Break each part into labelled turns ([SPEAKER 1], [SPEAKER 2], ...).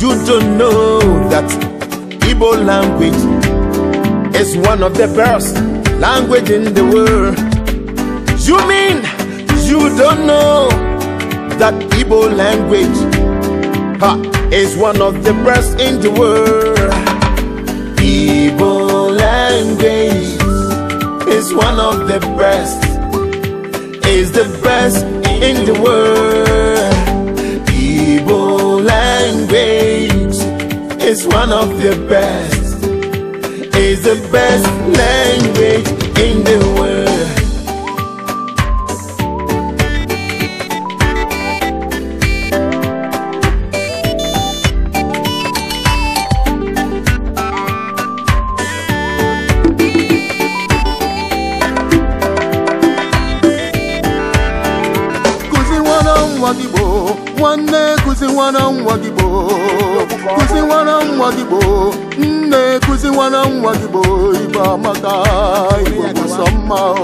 [SPEAKER 1] You don't know that Igbo language is one of the best language in the world. You mean you don't know that Igbo language ha, is one of the best in the world? Igbo language is one of the best, is the best in the world. is one of the best. It's the best language in the world.
[SPEAKER 2] Kuzi wana mwadibo nwanne kụzi nwara nwa gị gboo kụzi nwara nwa gị gboo nne kụzi nwara nwa gị gboo igbo amaka igbo bụsọ mma oh.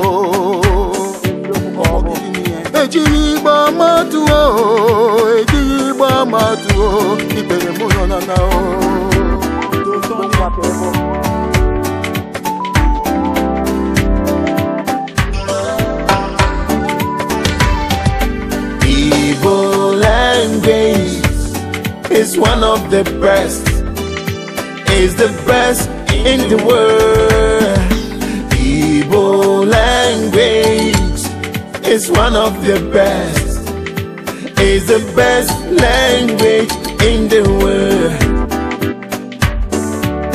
[SPEAKER 2] ejiri igbo ama tụọ ejiri igbo ama tụọ ikpere mụ nọ na o. Oh.
[SPEAKER 1] Igbo and is one of the best. Is the best in the world. Igbo language is one of the best. Is the best language in the world.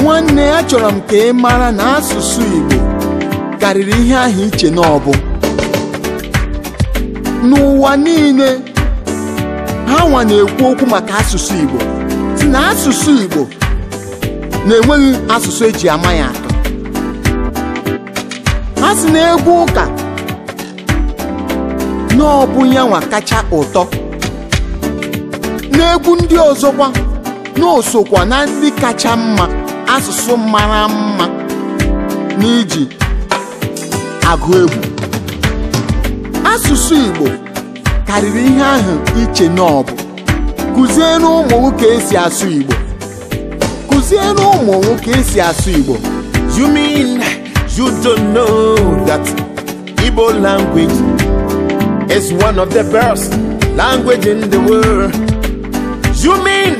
[SPEAKER 3] Nwanne ya chọrọ m ka ị mara na asụsụ Igbo karịrị ihe ahụ iche n'ọbụ n'ụwa niile ha nwa na-ekwu okwu maka asụsụ Igbo si na asụsụ Igbo na-enweghị asụsụ eji ama ya atọ ha si na egwu ụka n'ọbụ kacha ụtọ n'egwu ndị ọzọkwa na na ndị kacha mma asụsụ mara mma n'iji agụ egwu asụsụ Igbo karịrị ihe ahụ iche ụmụ nwoke esi asụ Igbo ụmụ nwoke esi asụ Igbo you mean you don't
[SPEAKER 1] know that Igbo language is one of the best language in the world you mean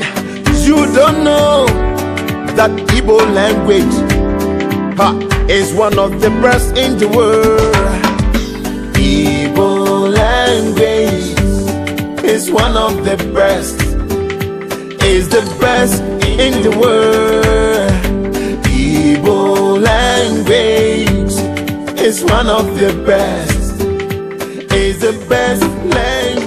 [SPEAKER 1] you don't know that Igbo language ha, is one of the best in the world is one of the best. Is the best in the world. Igbo language is one of the best. Is the best language.